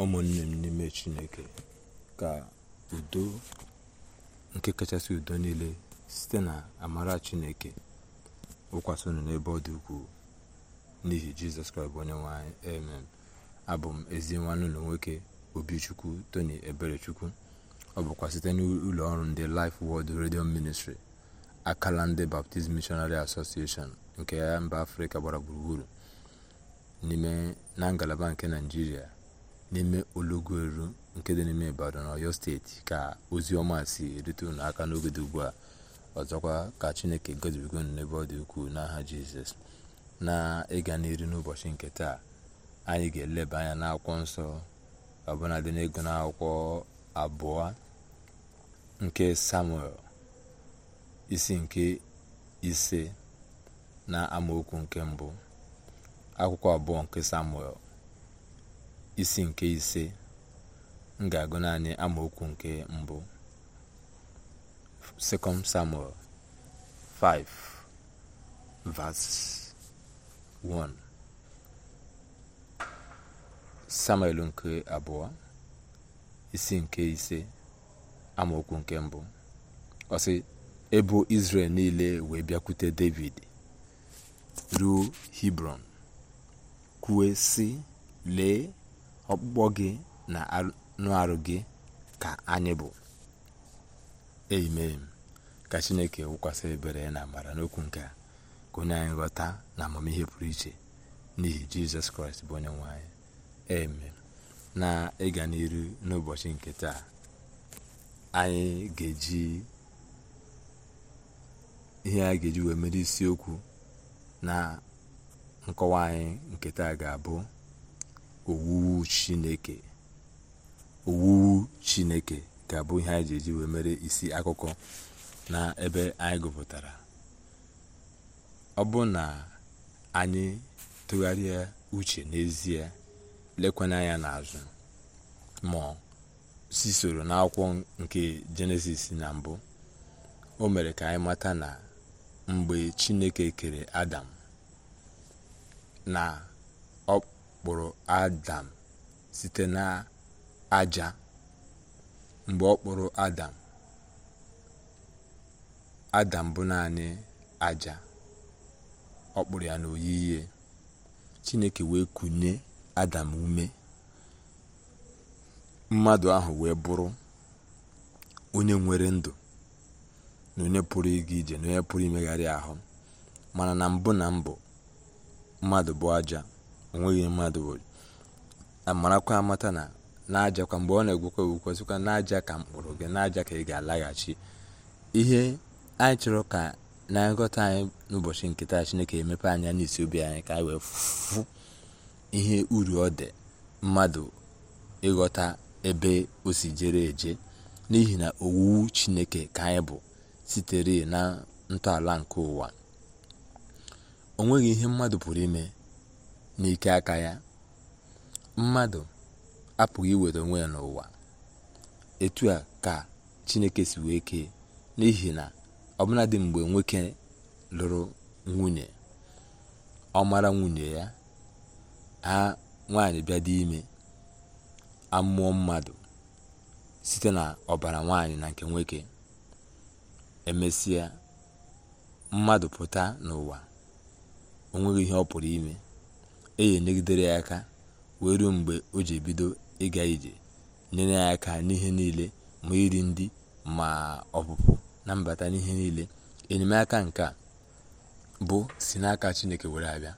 ụmụnne m n'ime chineke ka udo nke kachasị udo niile site na amara chineke wụkwasị n'ebe ọ dị ukwuu n'ihi jizọs kraịst bụ onye nwanyị amen abụ m ezi nwanne ụlọ nwoke obichukwu tony eberechukwu ọ bụkwa site n'ụlọ ọrụ ndị Life Word redio Ministry akala ndị Baptist Missionary Association nke ya mba afrịka gbara gburugburu n'ime na ngalaba nke naijiria n'ime olọgoru nke dị n'ime ibadan ọyọ steeti ka ozi ọma si erute unu aka n'oge dị ugbu a ọzọkwa ka chineke gozibigo unu n'ebe ọ dị ukwuu n'aha jizọs na ịga n'iru n'ụbọchị nke taa anyị ga-eleba anya n'akwụkwọ nsọ ọbụla dị n'ego n'akwụkwọ abụọ nke samuel isi nke ise na amaokwu nke mbụ akwụkwọ abụọ nke samuel isi nke ise m ga-agụ naanị amaokwu nke mbụ 2 Samuel 5 verse 1 Samuel nke abụọ isi nke ise amaokwu nke mbụ ọsị ebu ebo niile wee bịakwute David ruo Hebron kwue sị lee ọkpụkpọ gị na anụ arụ gị ka anyị bụ amen ka chineke wụkwasị ebere na amara n'okwu nke a ka onye anyị ghọta na amamihe pụrụ iche n'ihi jizọs kraịst bụ onye nwe anyị amen na ịga n'iru n'ụbọchị nke taa anyị ga-eji ihe a ga-eji wee mere isiokwu na nkọwa anyị nke taa ga-abụ owuwu chineke owuwu chineke ga-abụ ihe anyị ji eji wee mere isi akụkọ na ebe anyị gụpụtara ọ bụ na anyị tụgharịa uche n'ezie lekwanye anya n'azụ ma si soro n'akwụkwọ nke jenesis na mbụ o mere ka anyị mata na mgbe chineke kere adam na kpụrụ adam site na aja mgbe ọ kpụrụ adam adam bụ naanị aja ọ kpụrụ ya n'oyiyi chineke wee kunye adam ume mmadụ ahụ wee bụrụ onye nwere ndụ na onye pụrụ ịga ije na onye pụrụ imegharị ahụ mana na mbụ na mbụ mmadụ bụ aja onweghị mmadụ bụ marakwa amata na n'ajakwa mgbe ọ na-egwukwa egwukwa sịkwa n'aja ka mkpụrụ gị n'aja ka ị ga-alaghachi ihe anyị chọrọ ka na nghọta anyị n'ụbọchị nke taa chineke emepe anya n'isi obi anyị ka anyị wee fụ ihe uru ọ dị mmadụ ịghọta ebe o si jere eje n'ihi na owu chineke ka anyị bụ sitere na ntọala nke ụwa onweghị ihe mmadụ pụrụ ime n'ike aka ya mmadụ apụghị iweta onwe ya n'ụwa etu a ka chineke si wee kee n'ihi na ọbụladị mgbe nwoke lụrụ nwunye ọ mara nwunye ya ha nwaanyị bịa dị ime amụọ mmadụ site na ọbara nwaanyị na nke nwoke emesịa mmadụ pụta n'ụwa o nweghị ihe ọ pụrụ ime enyi nyegidere ya aka wee ruo mgbe o ji ebido ịga ije nyere ya aka n'ihe niile ma iri ndị ma ọpụpụ na mbata n'ihe niile enyemaka nke bụ si n'aka chineke were abịa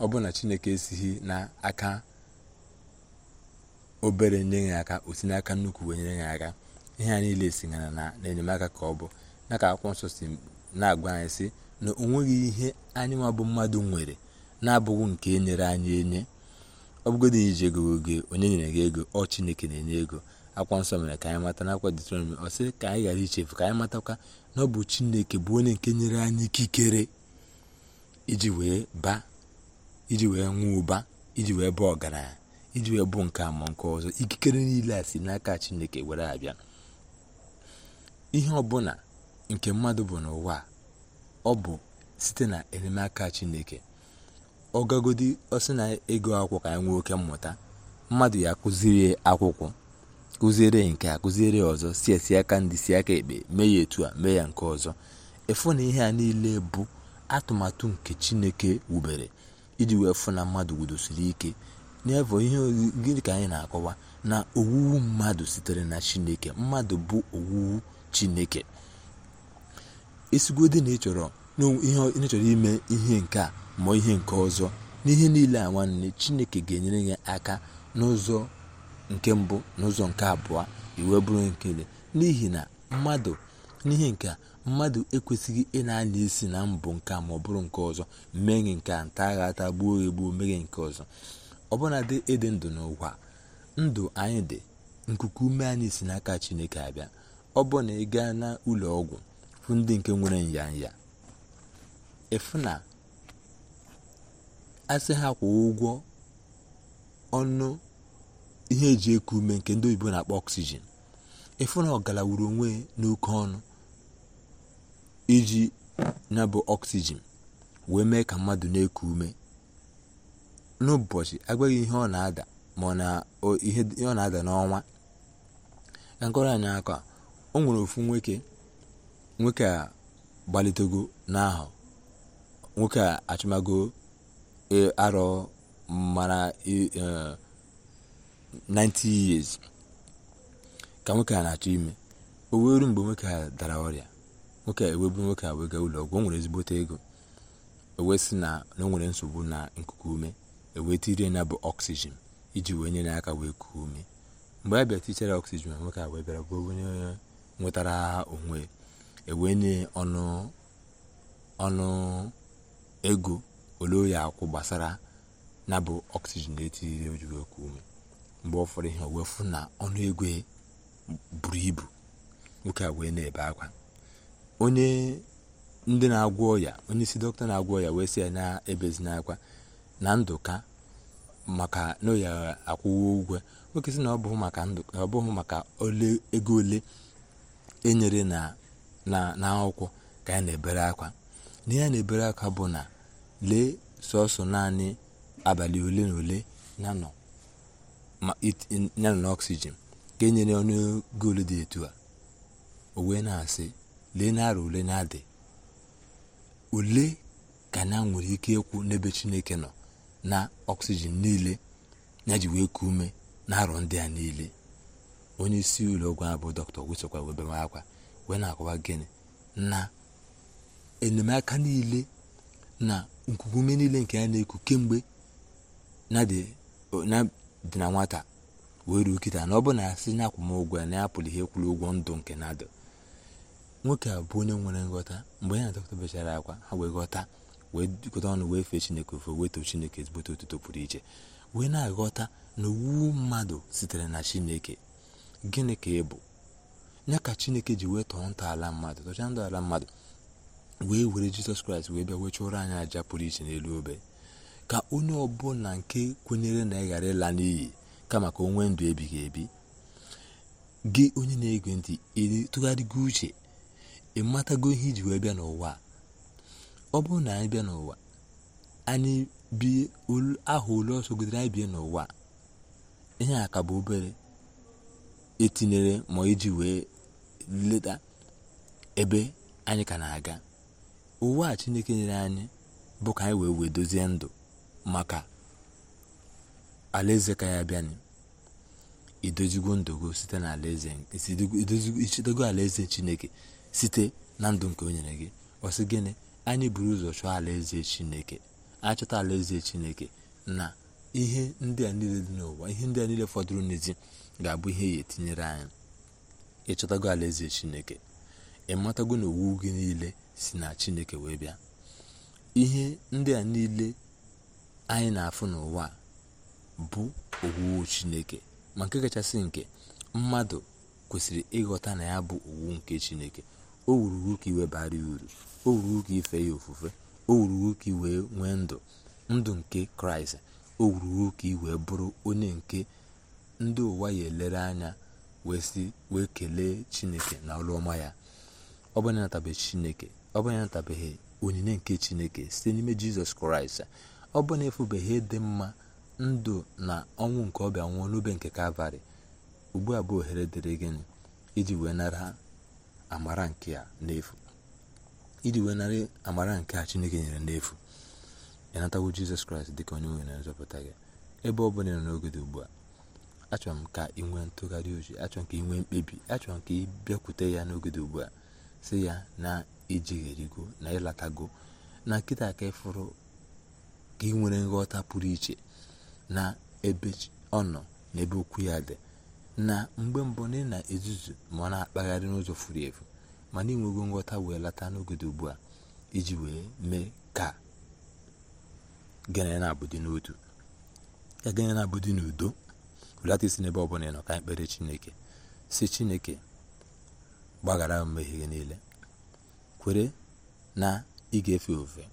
ọ bụ na chineke esighị n'aka obere nye ya aka osi n'aka nnukwu wee nyere ya aka ihe a niile sinyere na enyemaka ka ọ bụ na ka akwụkwọ nsọ si na-agwa anyị sị na o nweghị ihe anyị nwa bụ mmadụ nwere na-abụghị nke e nyere anyị enye ọ bụgodị iji ego oge onye nyere gị ego ọ chineke na-enye ego akwa nsọ mere ka anyị mata akwa detronomi ọ sị ka anyị ghara ichefu ka anyị matakwa na ọ bụ chineke bụ onye nke nyere anyị ikikere iji wee ba iji wee nwee ụba iji wee bụ ọgaranya iji wee bụ nke ama nke ọzọ ikikere niile a si n'aka chineke were abịa ihe ọbụla nke mmadụ bụ n'ụwa ọ bụ site na enyemaka chineke ọgagodi ọsị na ego akwụkwọ ka anyị nwee oke mmụta mmadụ ya kụziri akwụkwọ kụziere nke a kụziere ọzọ si esi aka ndị si aka ekpe mee ya etu a mee ya nke ọzọ efu na ihe a niile bụ atụmatụ nke chineke wubere iji wee fụ na mmadụ wudosiri ike n'evo ihe gịnị ka anyị na-akọwa na owuwu mmadụ sitere na chineke mmadụ bụ owuwu chineke esigodi na ịchọrọ ihe ịchọrọ ime ihe nke a mụọ ihe nke ọzọ n'ihe niile a nwanne chineke ga-enyere ya aka n'ụzọ nke mbụ n'ụzọ nke abụọ iwe bụrụ nkele n'ihi na mmadụ n'ihe nke a mmadụ ekwesịghị ị na-anya isi na mbụ nke a ma ọ bụrụ nke ọzọ mee nke a nta agha ata gbuo egbuo meghe nke ọzọ ọbụnadị ịdị ndụ n'ụwa ndụ anyị dị nkuku ume anyị si n'aka chineke abịa ọ bụ na ị gaa n'ụlọ ọgwụ fụ ndị nke nwere nya ịfụ na asị ha ụgwọ ọnụ ihe eji eku ume nke ndị oyibo na-akpọ ọksijin ịfụ na ọgala wuru onwe n'oke ọnụ iji na bụ ọksijin wee mee ka mmadụ na-eku ume n'ụbọchị agwaghị ihe ọ na-ada ma ọ na ihe ọ na-ada n'ọnwa ka nkọrọ anyị aka o nwere ofu nwoke nwoke a gbalitego n'ahụ nwoke a achụmago E, arọ mara 90 e, years ka nwoke a na-achọ ime o wee mgbe nwoke a dara ọrịa nwoke ewebu nwoke a wega ụlọ ọgwụ o nwere ezigbote ego o wee sị na o nwere nsogbu na nkuku ume ewee tirie bụ ọksijin iji wee nyere ya aka wee kuo ume mgbe a bịa tichara ọksijin nwoke a wee bịara bụ onye nwetara onwe ewee nye ọnụ ego olee oya akwụ gbasara na bụ ọksijin etiriri ojiri oku ume mgbe ọ fọrọ ihe wefu na ọnụ ego e buru ibu nwoke a wee na-ebe akwa onye ndị na-agwọ ọya onye isi dọkịta na-agwọ ọya wee sị ya na-ebezina akwa na ndụka maka na oya akwụwo ụgwọ nwoke si na ọ bụghị maka ego ole enyere na akwụkwọ ka ya na-ebere akwa na ya na-ebere akwa bụ na lee sọsọ naanị abalị ole na ole ya na n'ọksijin ka e nyere ọnụego ole dị etu a o wee na-asị lee narị ole na-adị ole ka na nwere ike ịkwụ n'ebe chineke nọ na ọksijin niile ya ji wee kuo ume na arọ ndị a niile onye isi ụlọ ọgwụ a bụ dọkịta ogwusokwa webe akwa wee na-akọwa gịnị na enyemaka niile na nkuku ume niile nke ya na-eku kemgbe na dị na nwata wee ruo kịta na ọ bụ na ya sị na akwụmụgwọ ya na ya pụrụ ihe kwuru ụgwọ ndụ nke na-adụ nwoke a bụ onye nwere nghọta mgbe ya na dọkịta bechara akwa ha wee ghọta wee jikọta ọnụ wee fee chineke ofe wee too chineke ezigbote otuto pụrụ iche wee na-aghọta na owu mmadụ sitere na chineke gịnị ka ị bụ ya ka chineke ji wee tọọ ntọala mmadụ tọchaa ntọala mmadụ wee were jizọs kraịst wee bịa wee chụrụ anyị aja pụrụ iche n'elu obe ka onye ọbụla nke kwenyere na ị ghara ịla n'iyi kama ka o nwee ndụ ebighị ebi gị onye na-ege ntị tụgharịgo uche ị matago ihe iji wee bịa n'ụwa ọ bụrụ na anyị bịa n'ụwa anyị bie aha ole ọsọ anyị bie n'ụwa ihe a ka bụ obere etinyere ma iji wee leta ebe anyị ka na-aga uwe a chineke nyere anyị bụ ka anyị wee wee dozie ndụ maka alaeze ka ya bịanụ idozigo ndụ alaeze chineke site na ndụ nke o nyere gị ọsị gịnị anyị buru ụzọ chọọ alaeze chineke achọta alaeze chineke na ihe ndị a niile dị n'ụwa ihe ndị a niile fọdụrụ n'ezi ga-abụ ihe ya etinyere anyị ịchọtago alaeze chineke ịmatago na owu gị niile si na chineke wee bịa ihe ndị a niile anyị na-afụ n'ụwa bụ owuwu chineke ma nke kachasị nke mmadụ kwesịrị ịghọta na ya bụ owu nke chineke o wurugo ka iwe bara ya uru o wurugo ka ife ya ofufe o wurugo ka iwee nwee ndụ ndụ nke kraịst o wuruwu ka iwee bụrụ onye nke ndị ụwa ya elere anya wee kelee chineke na ọlụọma ya ọ bụ na chineke ọ bụ na onyinye nke chineke site n'ime jizọs kraịst ọ bụ na efubeghị dị mma ndụ na ọnwụ nke ọbịa nwụọ n'obe nke kalvarị ugbu a bụ ohere dịrị gịnị iji wee nara amara nke a n'efu iji wee nara amara nke a chineke nyere n'efu ịnatawo jizọs kraịst dịka onye nwe na nzọpụta gị ebe ọ bụla nọ n'oge ugbu a achọrọ m ka ị nwee ntụgharị uche achọrọ ka ị nwee mkpebi achọrọ ka ị bịakwute ya n'ogede ugbu a si ya na ijigherigo na ịlatago na nkịta ka ịfụrụ ka ị nwere nghọta pụrụ iche na ebe ọ nọ na ebe okwu ya dị na mgbe mbụ na na-ezuzu ma ọ na-akpagharị n'ụzọ furu efu mana ịnwego nghọta wee lata n'oge ugbu a iji wee mee ka gịnị na-abụdị n'otu ka gịnị na-abụdị n'udo belata isi n'ebe ọ bụla nọ ka anyị kpere chineke si chineke gbaghara m mmehie gị niile kwere na ị ga-efe ofe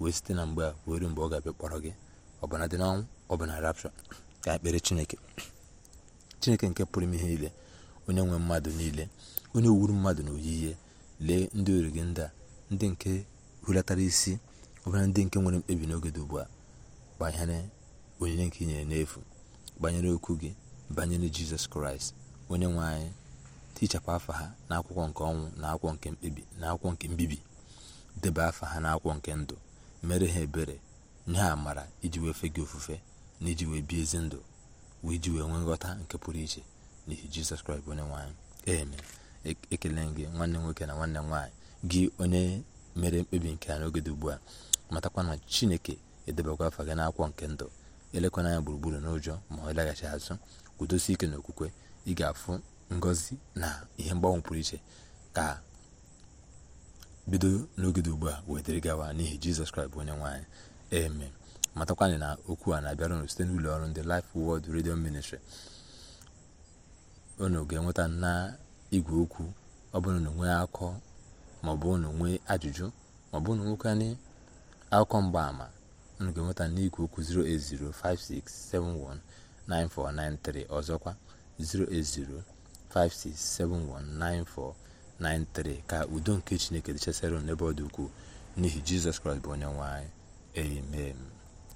wee site na mgbe a wee mgbe ọ ga-abịa kpọrọ gị ọbụna dị n'ọnwụ ọbụna rapshọ ka ekpere chineke chineke nke pụrụ ime ihe niile onye nwe mmadụ niile onye wuru mmadụ na oyiyi lee ndị ori gị ndị a ndị nke hulatara isi ọbụla ndị nke nwere mkpebi n'oge dị ugbu a banyere onyinye nke i nyere n'efu banyere okwu gị banyere jizọs kraịst onye nwe anyị tichapụ afa ha n'akwụkwọ nke ọnwụ na akwụkwọ nke mkpebi na akwụkwọ nke mbibi deba afa ha n'akwụkwọ nke ndụ mere ha ebere nye ha amara iji wee fe gị ofufe na iji wee bie ezi ndụ wee iji wee nwee nghọta nke pụrụ iche n'ihi jizọs kraịst onye nwaanyị eme e, ekele gị nwanne nwoke na nwanne m nwaanyị gị onye mere mkpebi nke a n'oge dị ugbu a matakwa na chineke edebakwa afa gị n'akwụkwọ nke ndụ elekwana anya gburugburu n'ụjọ ma ọ laghachi azụ kwudosi ike okwukwe ị ga-afụ ngozi na ihe mgbanwe pụrụ iche ka bido n'oge dị ugbu a wetere gawa n'ihi jizọs kraịst bụ onye nwaanyị eme matakwanyị na okwu a na-abịara unu site n'ụlọ ọrụ ndị Life Word redio Ministry unu ga-enweta na igwe okwu ọ bụrụ na nwee akọ maọbụ unu nwee ajụjụ maọbụ unu nwekanye akụkọ mgbaama unu ga-enweta n'igwe okwu 08056719493 ọzọkwa 080 56719493 ka udo nke chineke dịchasara n'ebe ọ dị ukwuu n'ihi jizọs kraịst bụ onye nwanyị. amen